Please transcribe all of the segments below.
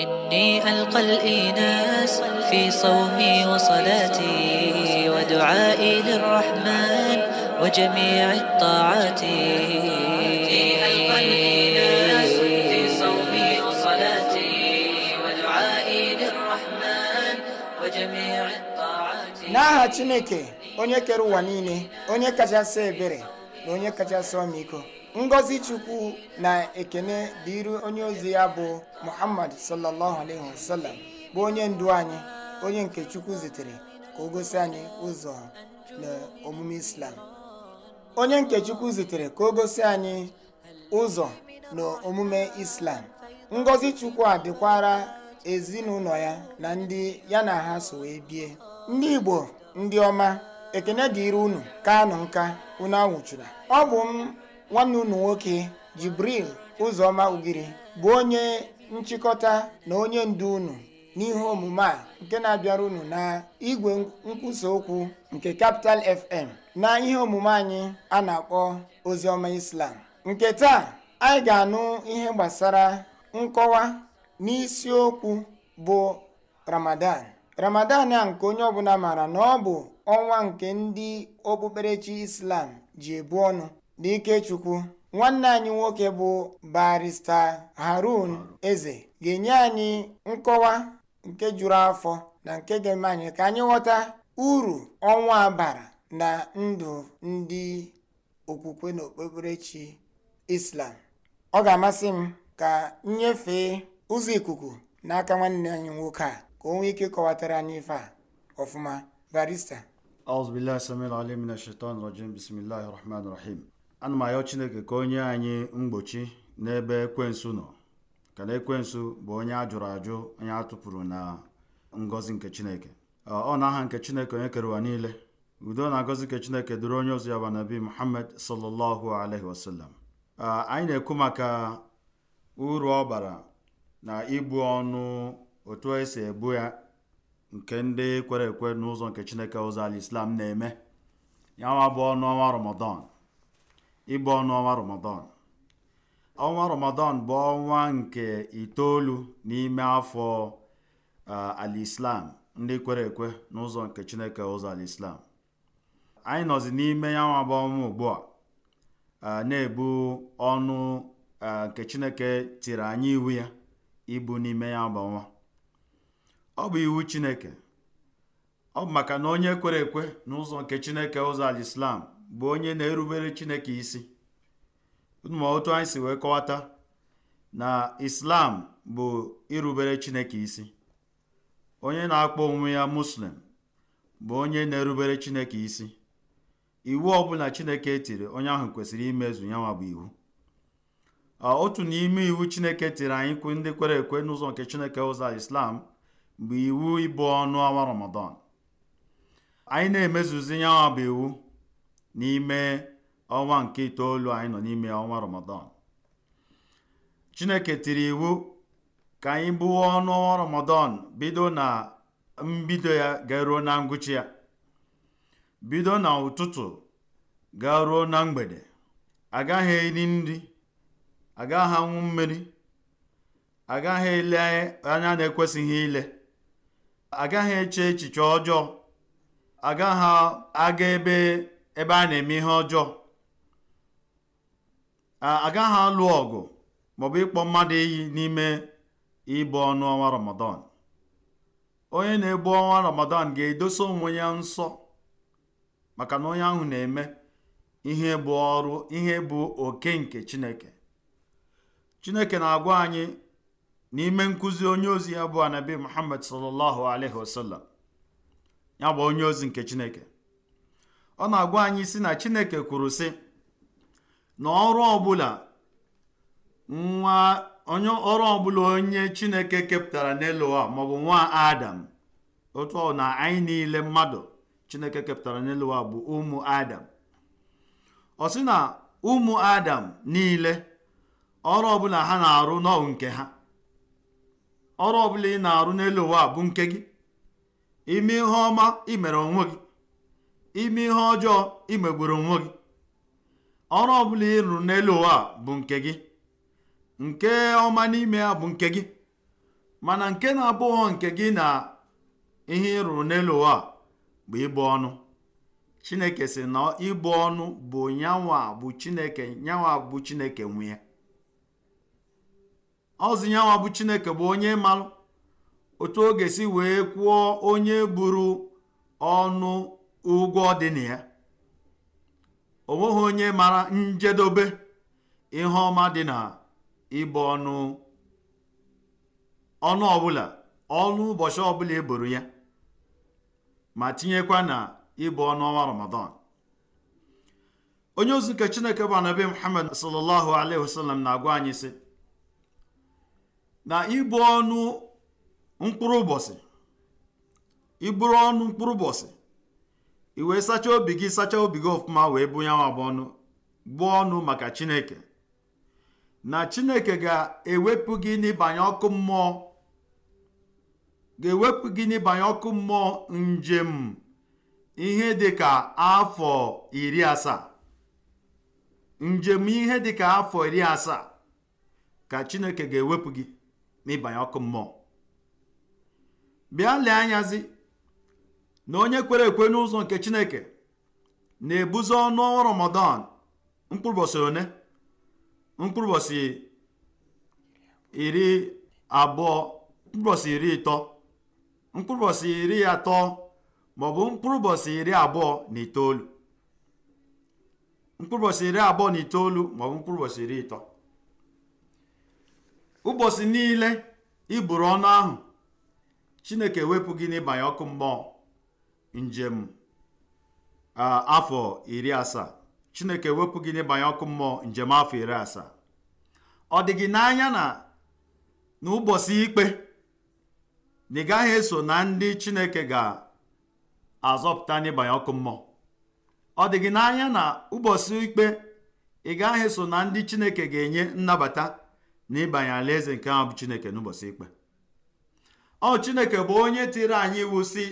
إني ألقى الإناس في صومي وصلاتي ودعائي للرحمن وجميع الطاعات n'aha chineke onye kere ụwa niile onye kachasị ebere na onye kachasị ọmịiko ngozi chukwu na ekene dịịrị onye ozi ya bụ muhammad sallallahu alaihi wasallam bụ onye ndu anyị onye nke chukwu zitere ka o gosi anyị ụzọ n'omume islam onye nke chukwu zitere ka o gosi anyị ụzọ na islam ngozi chukwu a dịkwara ezinụlọ ya na ndị ya na ha so wee bie ndị igbo ndị ọma ekene dịịrị unu ka anụ nka unu anwụchura ọ bụ m nwanne unu nwoke Jibril Ụzọma Ugiri bụ onye nchịkọta na onye ndu unu n'ihe omume a nke na-abịara unu na igwe nkwusa okwu nke kapital FM na ihe omume anyị a na-akpọ Oziọma Islam nke taa anyị ga-anụ ihe gbasara nkọwa n'isiokwu bụ Ramadan Ramadan a nke onye ọbụla maara na ọ bụ ọnwa nke ndị okpukperechi Islam ji ebu ọnụ n'ikechukwu nwanne anyị nwoke bụ barista harun eze ga-enye anyị nkọwa nke juru afọ na nke ga-eme anyị ka anyị ghọta uru ọnwa bara na ndụ ndị okwukwe na okpukperechi islam ọ ga-amasị m ka nyefee ụzọ ikuku n'aka nwanne anyị nwoke a ka o nwee ike kọwatara anyị ife a ọfụma barista أعوذ بالله السميع العليم من الشيطان الرجيم بسم الله الرحمن الرحيم ana m ayọ chineke ka onye anyị mgbochi n'ebe ekwensu nọ ka na ekwensu bụ onye a jụrụ ajụ onye a tụpụrụ na ngọzi nke chineke ọ na aha nke chineke onye kere ụwa niile udo na ngozi nke chineke duru onye ozi ya bụ nabi muhammad sallallahu alaihi wasallam anyị na-ekwu maka uru ọ bara na ibu ọnụ otu esi ebu ya nke ndị kwere ekwe n'ụzọ nke chineke ụzọ ala islam na-eme ya nwa bụ ọnụ ọnwa ramadan ịbụ ọnụ ọnwa ramadan ọnwa ramadan bụ ọnwa nke itoolu n'ime afọ alislam ndị kwere ekwe n'ụzọ nke chineke ụzọ alislam anyị nọzi n'ime ya nwa bụ ọnwa ugbu a na-ebu ọnụ nke chineke tiri anyị iwu ya ibu n'ime ya bụ ọnwa ọ bụ iwu chineke ọ bụ maka na onye kwere ekwe n'ụzọ nke chineke ụzọ alislam bụ onye na-erubere chineke isi ma otu anyị si wee kọwata na islam bụ irubere chineke isi onye na-akpọ onwe ya muslim bụ onye na-erubere chineke isi iwu ọbụla chineke tiri onye ahụ kwesịrị imezu ya nwa bụ iwu otu n'ime iwu chineke tiri anyị kwu ndị kwere ekwe n'ụzọ nke chineke ụzọ islam bụ iwu ịbụ ọnụ ọnwa ramadan anyị na-emezuzi ya nwa bụ iwu n'ime ọnwa nke itoolu anyị nọ n'ime ọnwa ramadan chineke tiri iwu ka anyị bụwa ọnụ ọnwa ramadan bido na mbido ya garuo na ngwụcha ya bido na ụtụtụ garuo na mgbede agaghị eri nri agaghị anwụ mmiri agaghị ele anya na-ekwesịghị ile agaghị eche echiche ọjọọ agaghị aga ebe ebe a na-eme ihe ọjọọ agaghị alụ ọgụ maọbụ ịkpọ mmadụ iyi n'ime ịbụ ọnụ ọnwa ramadan onye na-ebu ọnwa ramadan ga-edosa onwe ya nsọ maka na onye ahụ na-eme ihe bụ ọrụ ihe bụ oke nke chineke chineke na-agwa anyị n'ime nkuzi onye ozi ya bụ anabi muhammad sallallahu alaihi wasallam ya bụ onye ozi nke chineke ọ na-agwa anyị si na chineke kwuru sị na ọrụ ọbụla nwa onye ọrụ ọbụla onye chineke kepụtara n'eluwa maọbụ nwa adam otu ọ na anyị niile mmadụ chineke kepụtara n'eluwa bụ ụmụ adam ọ sị na ụmụ adam niile ọrụ ọbụla ha na-arụ n'ọwụ nke ha ọrụ ọbụla ị na-arụ n'elu ụwa bụ nke gị ime ihe ọma imere onwe gị ime ihe ọjọọ imegburu onwe gị ọrụ ọbụla ị rụrụ n'elu ụwa bụ nke gị nke ọma n'ime ya bụ nke gị mana nke na-abụghọ nke gị na ihe ị rụrụ n'elu ụwa bụ ịbụ ọnụ chineke sị na ịbụ ọnụ bụ nyanwa bụ chineke nyanwa bụ chineke nwe ya ọzụ nyanwa bụ chineke bụ onye malụ otu oge si wee kwụọ onye buru ọnụ ụgwọ dị na ya onye mara njedobe ihe ọma dị na ịbụ ọnụ ọnụ ọbụla ọnụ ụbọchị ọbụla eboro ya ma tinyekwa na ịbụ ọnụ ọnwa ramadan onye ozi nke chineke bụ anabi muhammad sallallahu alaihi wasallam na-agwa anyị sị na ịbụ ọnụ mkpụrụ ụbọchị i wee sachaa obi gị sachaa obi gị ọfụma wee bụ yanwa bụ ọnụ gbuo ọnụ maka chineke na chineke ga-ewepụ gị n'ịbanye ọkụ mmụọ ga-ewepụ gị n'ịbanye ọkụ mmụọ njem ihe dịka afọ iri asaa njem ihe ka afọ iri asaa ka chineke ga-ewepụ gị ịbanye ọkụ mmụọ bịa lee anyazi na onye kwere ekwe n'ụzọ nke chineke na-ebuzi ọnụ ọnwa ramadan mkpụrụbọsị one mkpụrụbọsị iri abụọ mkpụrụbọsị iri ịtọ mkpụrụbọsị iri atọ maọbụ mkpụrụbọsị iri abụọ na itoolu mkpụrụbọsị iri abụọ na itoolu maọbụ mkpụrụbọsị iri ịtọ ụbọchị niile iburu ọnụ ahụ chineke ewepụ gị n'ịbanye ọkụ mmụọ njem afọ iri asaa chineke wepụ gị n'ịbanye ọkụ mmụọ njem afọ iri asaa ọ dị gị n'anya na n'ụbọchị ikpe na ị gaghị eso na ndị chineke ga-azọpụta n'ịbanye ọkụ mmụọ ọ dị gị n'anya na ụbọchị ikpe ị gaghị eso na ndị chineke ga-enye nnabata na ịbanye alaeze nke ahụ bụ chineke n'ụbọchị ikpe ọ chineke bụ onye tiri anyị iwu si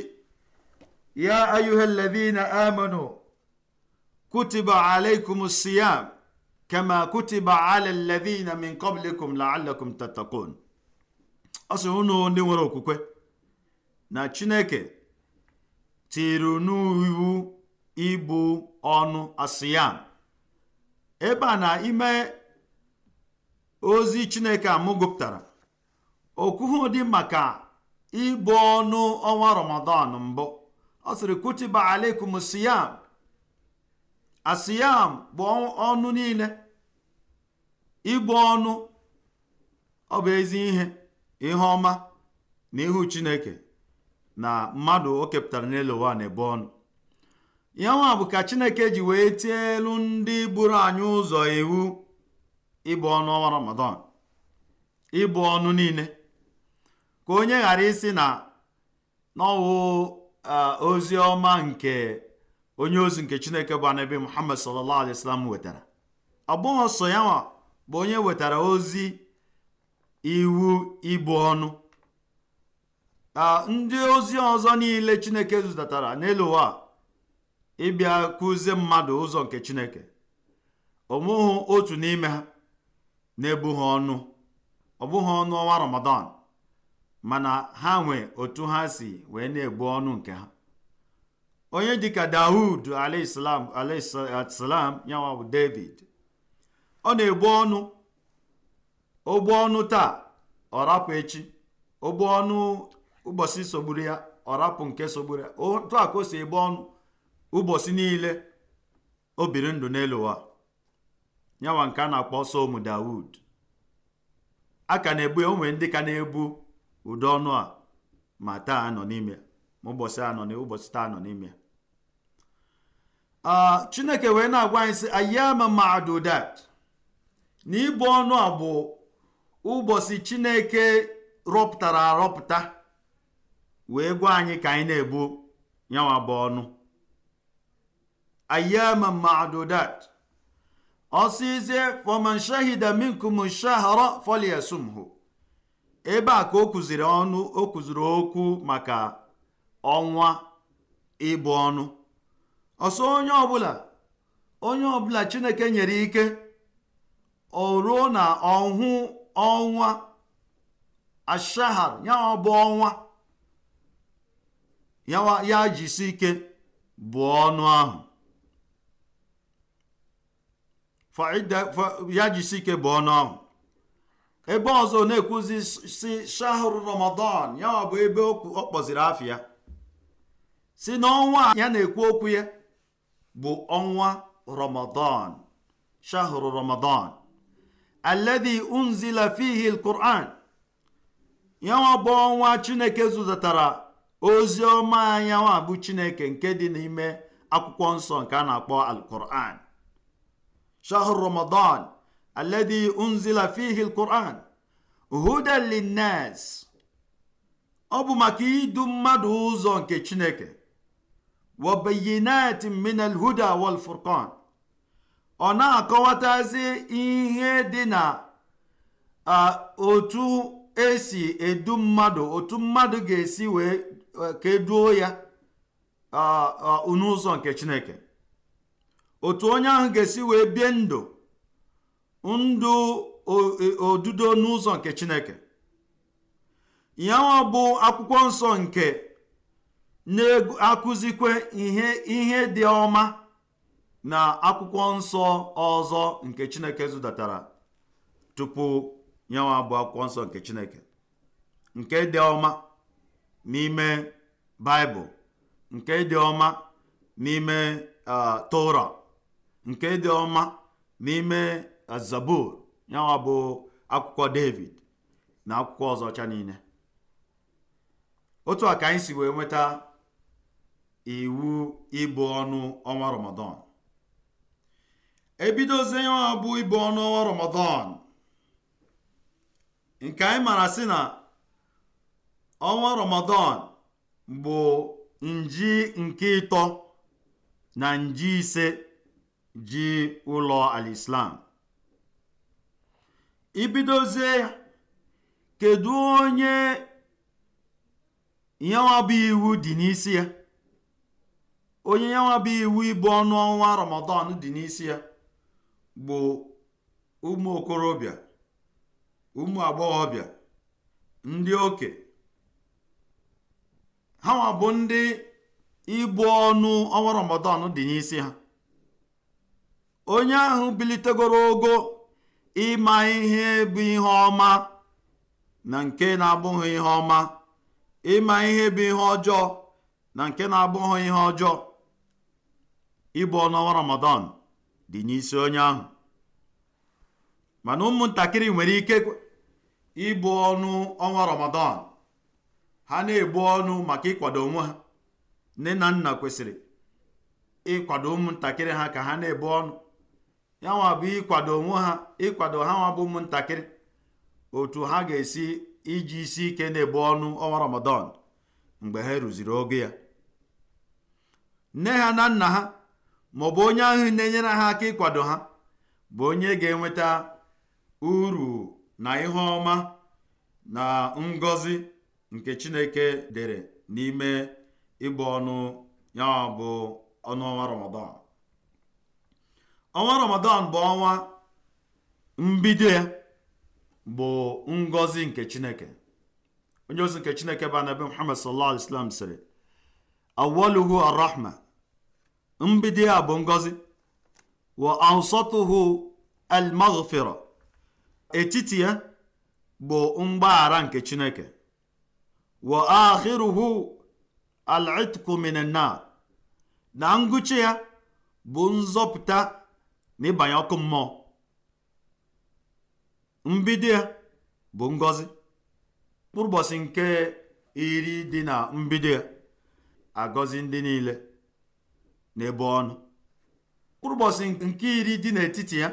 يا أيها الذين آمنوا كتب عليكم الصيام كما كتب على الذين من قبلكم لعلكم تتقون ọsị unu ndị nwere okwukwe na chineke tiri n'iwu ibu ọnụ asịyam ebe a na ime ozi chineke amụgụpụtara okwuhu dị maka ibu ọnụ ọnwa ramadan mbụ ọ sịrị kutiba alaikum siyam asiyam bụ ọnụ niile ịbụ ọnụ ọ bụ ezi ihe ihe ọma na ihu chineke na mmadụ o kepụtara n'elu ụwa na-ebu ọnụ ya nwa bụ ka chineke ji wee tie elu ndị buru anyị ụzọ iwu ịbụ ọnụ ọnwa ramadan ịbụ ọnụ niile ka onye ghara isi na n'ọwụ Eh, ozi ọma nke onye ozi nke chineke bụ anabi muhammad sallallahu alaihi wasallam wetara ọ bụghị sọ ya bụ onye wetara ozi iwu ibu ọnụ eh, ndị ozi ọzọ niile chineke zụtatara n'elu ụwa ịbịa kụzie mmadụ ụzọ nke chineke ọmụghị otu n'ime ha na-ebughị ọnụ ọ ọnụ ọnwa ramadan mana ha nwee otu ha si wee na-egbu ọnụ nke ha onye dịka dawud alaislam alaislam yanwa bụ david ọ na-egbu ọnụ ogbu ọnụ taa ọ rapụ echi ogbu ọnụ ụbọchị sogburu ya ọ rapụ nke sogburu ya otu a ka o si egbu ọnụ ụbọchị niile o biri ndụ n'elu ụwa yanwa nke a na-akpọ somu dawud a ka na-egbu ya onwe ndị ka na-egbu ụdị ọnụ a ma taa nọ n'ime ma ụbọchị a nọ ụbọchị taa nọ n'ime ah, chineke wee na-agwa anyị sị ayama madudat na ibu ọnụ a bụ ụbọchị chineke rọpụtara arọpụta wee gwa anyị ka anyị na-ebu yanwa bụ ọnụ ayama madudat ọsịzie faman shahida minkum shahra hụ. ebe a ka o kụziri ọnụ o kụziri okwu maka ọnwa ịbụ ọnụ ọsọ onye ọbụla onye ọbụla chineke nyere ike o ruo na ọhụ ọnwa ashahar ya bụ ọnwa ya jisi ya jisi ike bụ ọnụ ahụ ebe ọzọ na-ekwuzi si shahru ramadan ya ọ bụ ebe ọ kpọziri afịa si n'ọnwa ya na-ekwu okwu ya bụ ọnwa ramadan shahru ramadan alladhi unzila fihi alquran ya bụ ọnwa chineke zụtatara ozi ọma anya bụ chineke nke dị n'ime akwụkwọ nsọ nke a na-akpọ alquran shahru ramadan الذي أنزل فيه القرآن هدى للناس ọ bụ maka idu mmadụ ụzọ nke chineke wabayinat min alhuda wal furqan ọ na-akọwatazi ihe dị na otu si edu mmadụ otu mmadụ ga-esi wee ka eduo ya n'ụzọ nke chineke otu onye ahụ ga-esi wee bie ndụ ndụ e, odudo n'ụzọ nke chineke ya bụ akwụkwọ nsọ nke na-akụzikwe ihe ihe dị ọma na akwụkwọ nsọ ọzọ nke chineke zụdatara tupu nyawa bụ akwụkwọ nsọ nke chineke nke dị ọma n'ime baịbụl nke dị ọma n'ime ah, tora nke dị ọma n'ime ya nwa bụ akwụkwọ david na akwụkwọ ọzọ ọcha niile otu a ka anyị si wee nweta iwu ịbụ ọnụ ọnwa ramadan ebidozie yanwa bụ ịbụ ọnụ ọnwa ramadan nke anyị mara sị na ọnwa ramadan bụ nji nke ịtọ na nji ise ji ụlọ alislam ibidozie ya kedu onye nyanwa iwu dị n'isi ya onye nyanwa iwu ịbụ ọnụ ọnwa ramadan dị n'isi ya bụ ụmụ okorobịa ụmụ agbọghọbịa ndị oke ha ma bụ ndị ịbụ ọnụ ọnwa ramadan dị n'isi ha onye ahụ bilitegoro ogo ịma ihe bụ ihe ọma na nke na-abụghị ihe ọma ịma ihe bụ ihe ọjọọ na nke na-abụghị ihe ọjọọ ịbụ ọnwa Ramadan dị n'isi onye ahụ mana ụmụntakịrị nwere ike ịbụ ọnụ ọnwa Ramadan ha na-ebu ọnụ maka ịkwado onwe ha nne na nna kwesịrị ịkwado ụmụntakịrị ha ka ha na-ebu ọnụ ya nwa bụ ịkwado onwe ha ịkwado ha nwa bụ ụmụntakịrị otu ha ga-esi iji isi ike na-ebu ọnụ ọnwa ramadan mgbe ha rụziri oge ya nne ha na nna ha maọbụ onye ahụ na-enyere ha aka ịkwado ha bụ onye ga-enweta uru na ihe ọma na ngọzi nke chineke dere n'ime ịbụ ọnụ ya bụ ọnụ ọnwa ọnwa ramadan bụ ọnwa mbido ya bụ Ngozi nke chineke onye ozi nke chineke bụ anabi muhammad sallallahu alaihi wasallam sịrị awaluhu arrahma mbido ya bụ ngọzi wa awsatuhu almaghfira etiti ya bụ mgbaghara nke chineke wa akhiruhu al'itku minan nar na ngụcha ya bụ nzọpụta n'ịbanye ọkụ mmụọ mbido ya bụ ngozi mkpụrụ nke iri dị na mbido ya agọzi ndị niile n'ebe ọnụ mkpụrụ nke iri dị n'etiti ya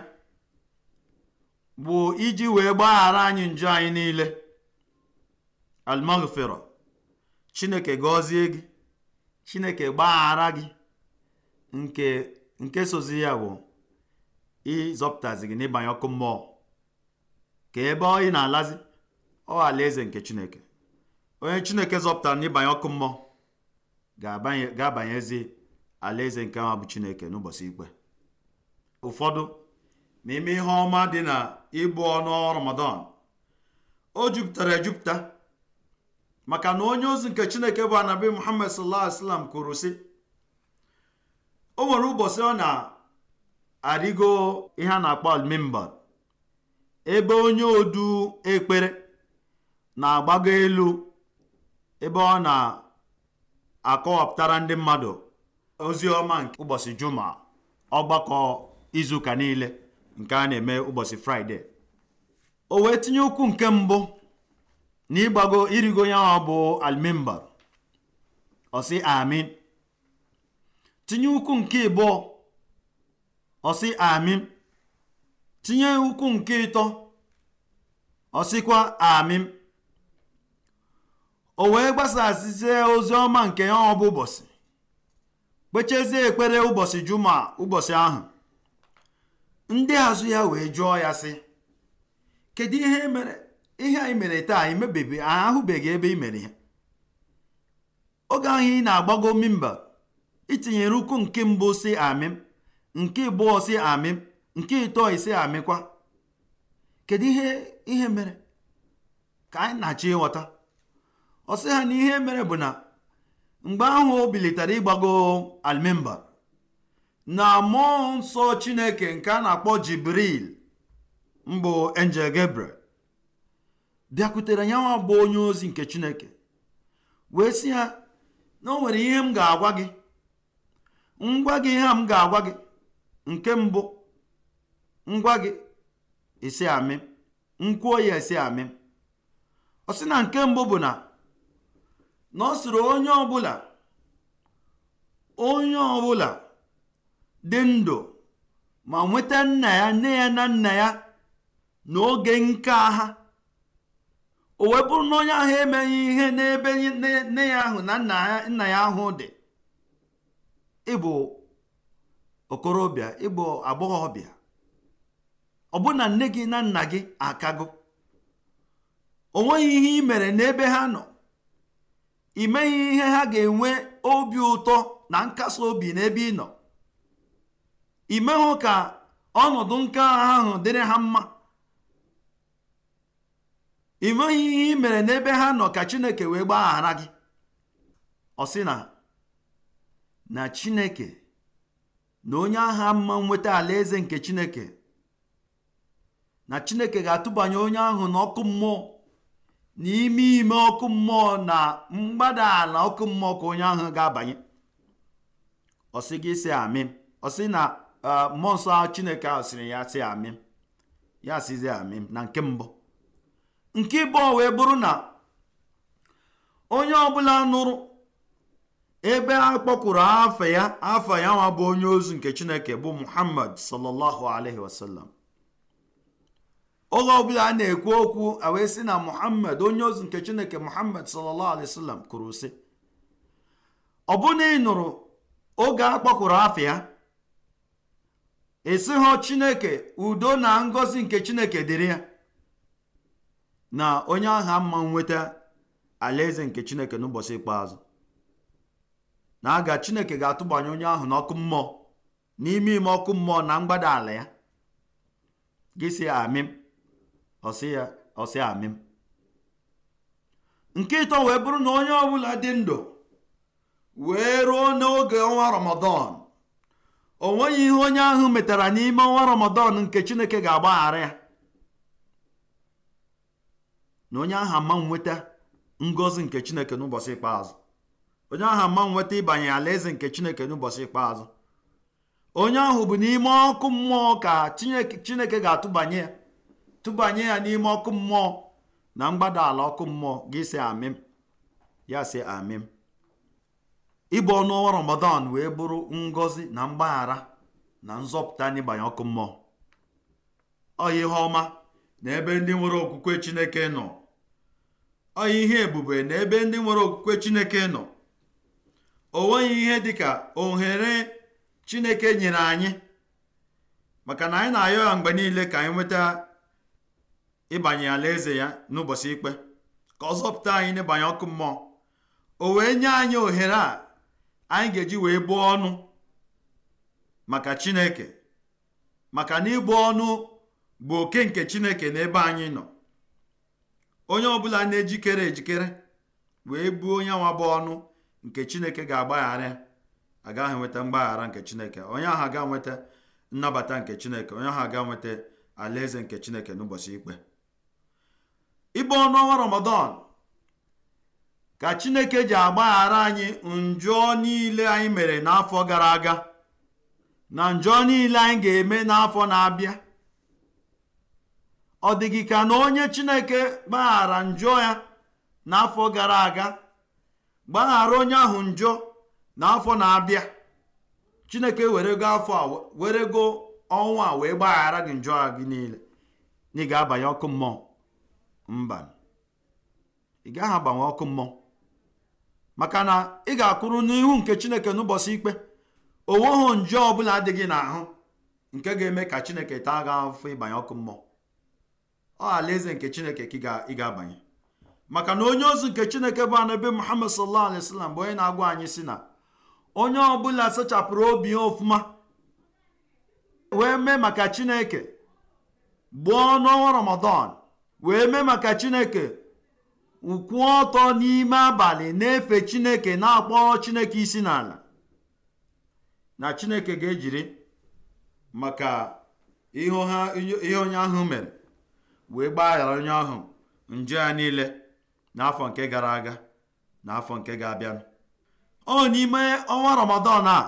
bụ iji wee gbaghara anyị njọ anyị niile almaghfira chineke gọzie gị chineke gbaghara gị nke nke sozi ya bụ ịzọpụtazi gị n'ịbanye ọkụ mmụọ ka ebe ọ ị na-alazi ọ alaeze nke chineke onye chineke zọpụtara n'ịbanye ọkụ mmụọ ga-abanyezi alaeze nke ama bụ chineke n'ụbọchị ikpe ụfọdụ n'ime ihe ọma dị na ịbụ ọnụ ramadan o jupụtara ejupụta maka na onye ozi nke chineke bụ anabi muhammad sallallahu alaihi wasallam kwuru sị o nwere ụbọchị ọ na arịgo ihe a na-akpọ almimbar ebe onye odu ekpere na-agbago elu ebe ọ na-akọwapụtara ndị mmadụ ozi ọma nke ụbọchị juma ọgbakọ izuụka niile nke a na-eme ụbọchị fraịde o wee tinye ụkwụ nke mbụ na ịgbago irigo ya ọ bụ almimbar ọsị amin tinye ụkwụ nke ịbụọ ọsị amim tinye ukwu nke ịtọ ọsịkwa amim o wee gbasazie ozi ọma nke ya ọ bụ ụbọchị kpechezie ekpere ụbọchị juma ụbọchị ahụ ndị azụ ya wee jụọ ya sị kedu ihe e mere ihe anyị mere taa emebeghị ahụbeghị ebe i mere ya oge ahụ ị na-agbago mimba itinyere ukwu nke mbụ si amim nke ịbụọ si amị nke ịtọ isi amịkwa kedu ihe ihe mere ka anyị na-achọ ịghọta ọ ha na ihe mere bụ na mgbe ahụ o bilitara ịgbago na mmụọ nsọ chineke nke a na-akpọ jibril mbụ enjel gabriel bịakwutere ya nwa bụ onye ozi nke chineke wee sị ha na o nwere ihe m ga-agwa gị ngwa gị ihe m ga-agwa gị nke mbụ ngwa gị esi amị nkwuo ya esi amị ọ sị na nke mbụ bụ na na ọ sịrị onye ọbụla onye ọbụla dị ndụ ma nweta nna ya nne ya na nna ya n'oge nke ha o wee bụrụ na onye ahụ emeghị ihe n'ebe nne ya ahụ na nna ya ahụ dị ịbụ okorobịa ịbụ agbọghọbịa ọbụna nne gị na nna gị akago nweghị ihe ị mere n'ebe ha nọ ị meghị ihe ha ga-enwe obi ụtọ na nkasi obi n'ebe ị nọ ị meghụ ka ọnọdụ nke ahụ dịrị ha mma ị nweghị ihe ị mere n'ebe ha nọ ka chineke wee gbaghara gị ọ sị na na chineke na onye agha mma nweta alaeze nke chineke na chineke ga-atụbanye onye ahụ na ọkụ mmụọ n'ime ime ọkụ mmụọ na mgbada ala ọkụ mmụọ ka onye ahụ ga-abanye ọsị gị si amị ọsị na mmụọ chineke ahụ sịrị ya si amị ya sizi amị na nke mbụ nke bụrụ na onye ọbụla nụrụ ebe a kpọkwuru afa ya afa ya nwa bụ onye ozu nke chineke bụ muhammad sallallahu alaihi wasallam oge ọbụla a na-ekwu okwu a wee sị na muhammad onye ozu nke chineke muhammad sallallahu alaihi wasallam kwuru sị ọ bụ na ị nụrụ oge a kpọkụrụ afa ya esighọ chineke udo na ngozi nke chineke dịrị ya na onye ahụ mma nweta alaeze nke chineke n'ụbọchị ikpeazụ na aga chineke ga-atụbanye onye ahụ n'ọkụ mmụọ n'ime ime ọkụ mmụọ na mgbada ala ya gị sị ya ọsị ya amịm nke ịtọ wee bụrụ na onye ọbụla dị ndụ wee ruo n'oge ọnwa ramadan o nweghị ihe onye ahụ metara n'ime ọnwa ramadan nke chineke ga-agbaghara ya na onye ahụ ama nweta ngọzi nke chineke n'ụbọchị ikpeazụ onye ahụ ama nweta ịbanye alaeze nke chineke n'ụbọchị ikpeazụ onye ahụ bụ n'ime ọkụ mmụọ ka chineke ga-atụbanye ya tụbanye ya n'ime ọkụ mmụọ na mgbada ala ọkụ mmụọ gị si amịm ya si amịm ịbụ ọnụ ọnwa ramadan wee bụrụ ngọzi na mgbaghara na nzọpụta n'ịbanye ọkụ mmụọ ọya ihe ọma na ebe ndị nwere okwukwe chineke nọ ọya ihe ebube na ebe ndị nwere okwukwe chineke nọ o nweghị ihe ka ohere chineke nyere anyị maka na anyị na-ayọ ya mgbe niile ka anyị nweta ịbanye alaeze ya n'ụbọchị ikpe ka ọ zọpụta anyị n'ịbanye ọkụ mmụọ o wee nye anyị ohere a anyị ga-eji wee bụọ ọnụ maka chineke maka na ịbụ ọnụ bụ oke nke chineke n'ebe anyị nọ onye ọbụla na-ejikere ejikere wee buo onye nwa bụ ọnụ nke chineke ga-agbaghara agaghị nweta mgbaghara nke chineke onye ahụ aga nweta nnabata nke chineke onye ahụ aga nweta alaeze nke chineke n'ụbọchị ikpe ibe ọnụọnwa ramadan ka chineke ji agbaghara anyị njọ niile anyị mere n'afọ gara aga na njọ niile anyị ga-eme n'afọ na-abịa ọ dịghị ka na onye chineke gbaghara njọ ya n'afọ gara aga gbaghara onye ahụ njọ n'afọ na-abịa chineke were go a ọnwa a wee gbaghara gị njọ a gị niile na ị ga-abanye ọkụ mmụọ mba ị ọkụ mmụọ maka na ị ga-akwụrụ n'ihu nke chineke n'ụbọchị ikpe onweghị njọ ọbụla dị gị n'ahụ nke ga-eme ka chineke taa gị afọ ịbanye ọkụ mmụọ ọ eze nke chineke ka ị ga-abanye maka na onye ozi nke chineke bụ anabi muhammad sallallahu alaihi wasallam bụ onye na-agwa anyị si na onye ọbụla sachapụrụ obi ofuma wee mee maka chineke gbuo n'ọnwa ramadan wee mee maka chineke ụkwụ ọtọ n'ime abalị na-efe chineke na-akpọrọ chineke isi n'ala na chineke ga-ejiri maka ihe onye ahụ mere wee gbaghara onye ahụ njọ ya niile n'afọ nke gara aga na afọ nke ga-abịanụ ọ n'ime ọnwa ramadan a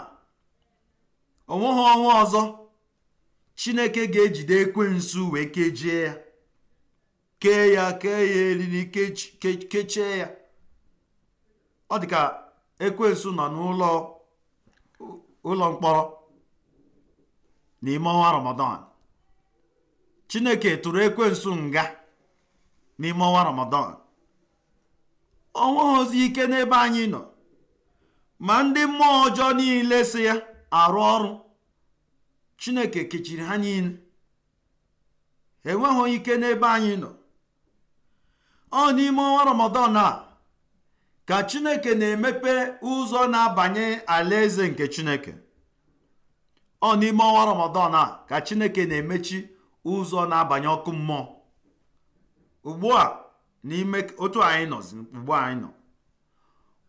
onweghị ọnwa ọzọ chineke ga-ejide ekwe nsu wee kejie ya kee ya kee ya eriri kechie ya ọ dị ka nsu nọ n'ụlọ ụlọ mkpọrọ n'ime ọnwa ramadan chineke tụrụ ekwe nsu nga n'ime ọnwa ramadan ọnweghịzi ike n'ebe anyị nọ ma ndị mmụọ ọjọọ niile si ya arụ ọrụ chineke kechiri ha niile enweghị ike n'ebe anyị nọ ọ n'ime ọnwa ramadan a ka chineke na-emepe ụzọ na-abanye alaeze nke chineke ọ n'ime ọnwa ramadan a ka chineke na-emechi ụzọ na-abanye ọkụ mmụọ ugbu a n'ime otu anyị nọ ugbu anyị nọ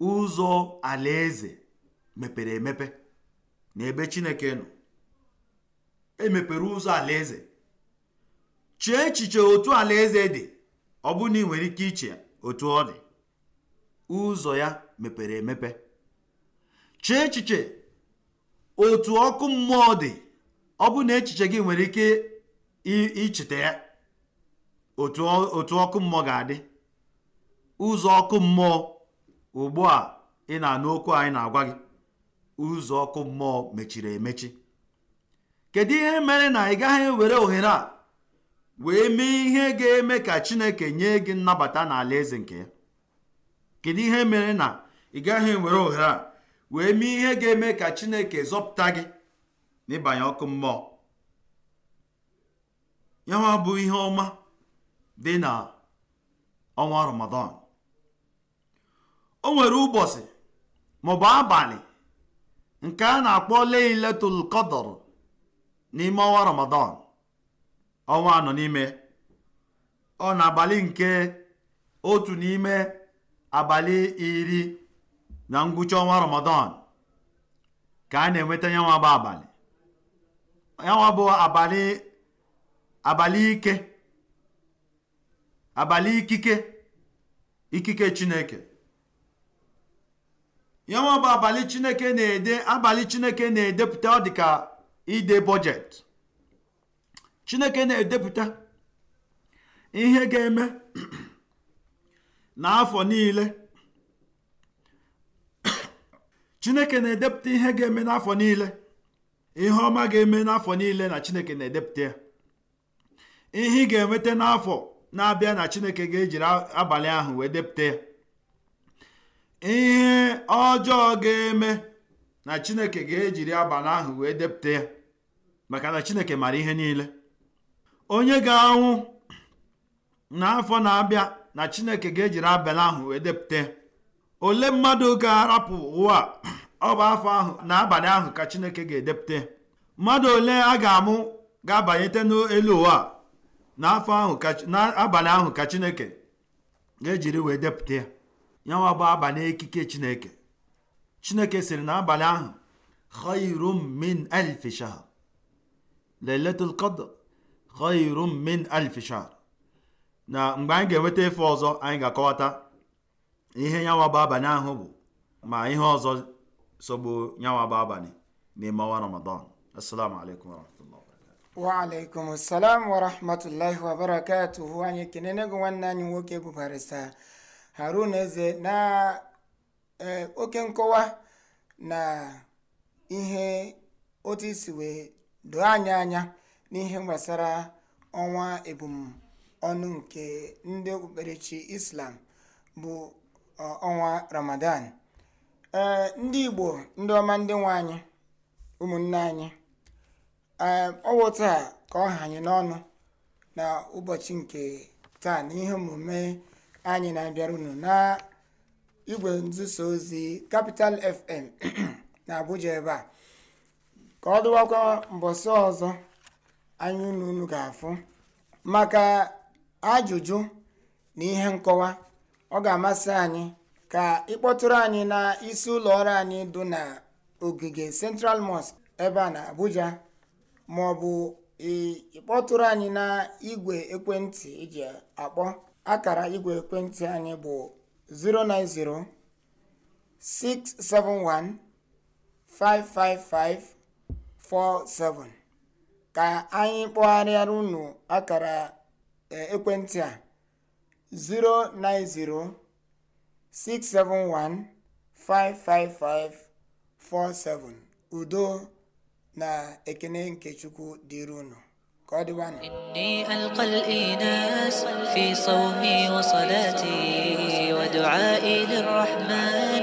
ụzọ alaeze mepere emepe na ebe chineke nọ emepere ụzọ alaeze chee echiche otu alaeze dị ọ na ị nwere ike iche otu ọ dị ụzọ ya mepere emepe chee echiche otu ọkụ mmụọ dị ọ bụ na echiche gị nwere ike icheta ya otu ọkụ mmụọ ga-adị ụzọ ọkụ mmụọ ugbu a ị na-anụ okwu anyị na-agwa gị ụzọ ọkụ mmụọ mechiri emechi kedu ihe mere na ị gaghị ewere ohere a wee mee ihe ga-eme ka chineke nye gị nnabata n'ala eze nke ya kedu ihe mere na ị gaghị ewere ohere a wee mee ihe ga-eme ka chineke zọpụta gị n'ịbanye ọkụ mmụọ ya bụ ihe ọma dị na ọnwa ramadan o nwere ụbọchị maọbụ abalị nke a na-akpọ leiletul qadr n'ime ọnwa ramadan ọnwa anọ n'ime ọ na abalị nke otu n'ime abalị iri na ngwụcha ọnwa ramadan ka a na-enweta nyanwa bụ abalị bụ abalị abalị ike abalị ikike ikike chineke ya nwa bụ abalị chineke na-ede abalị chineke na-edepụta ọ dịka ide bọjet chineke na-edepụta ihe ga-eme n'afọ niile chineke na-edepụta ihe ga-eme n'afọ niile ihe ọma ga-eme n'afọ niile na chineke na-edepụta ya ihe ị ga-enweta n'afọ na-abịa na chineke ga-ejiri abalị ahụ wee depụta ya ihe ọjọọ ga-eme na chineke ga-ejiri abalị ahụ wee depụta ya maka na chineke mara ihe niile onye ga-anwụ n'afọ na-abịa na chineke ga-ejiri abalị ahụ wee depụta ya ole mmadụ ga-arapụ ụwa ọ bụ afọ ahụ na abalị ahụ ka chineke ga-edepụta mmadụ ole a ga-amụ ga-abanyete n'elu ụwa n'afọ ahụ n'abalị ahụ ka chineke ga-ejiri wee depụta ya yanwa bụ abalị ekike chineke chineke sịrị na abalị ahụ khairum min alfi shahr khairum min na mgbe anyị ga-enweta ife ọzọ anyị ga-akọwata ihe yanwa bụ abalị ahụ bụ ma ihe ọzọ sogbu yanwa bụ abalị n'ime ọnwa ramadan assalamu alaikum wa alaikum salam wa rahmatullahi wa barakatuhu anyị kenene gị nwanne anyị nwoke bụ barista haruna eze na eh, oke nkọwa na ihe otu isi wee doo anya anya n'ihe gbasara ọnwa ebumọnụ nke ndị okpukperechi islam bụ eh, ọnwa ramadan eh, ndị igbo ndị ọma ndị nwe anyị ụmụnne anyị ọwụ taa ka ọ hanye n'ọnụ na ụbọchị nke taa na ihe omume anyị na-abịara unu na igwe nzuso ozi Capital FM na Abuja ebe a ka ọ dụwakwa mbọsị ọzọ anyị unu unu ga-afụ maka ajụjụ na ihe nkọwa ọ ga-amasị anyị ka ịkpọtụrụ anyị na isi ụlọ ọrụ anyị dị na ogige Central Mosque ebe a na Abuja ma ọ bụ ịkpọtụrụ anyị na igwe ekwentị iji akpọ akara igwe ekwentị anyị bụ 090 671 47 ka anyị kpọgharịara unu akara e, ekwentị a 090 671 47 udo na ekene nke chukwu dịrinu akal eyina safisomi osoat dedrahman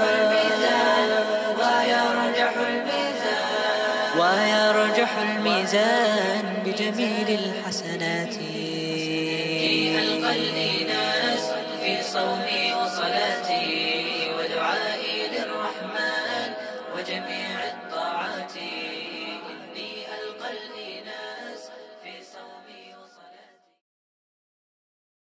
za aha na gbe de ehị ndị lakpasanatị ea